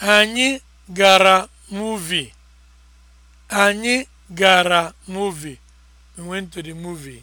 Anyị gara muvi Anyị gara muvi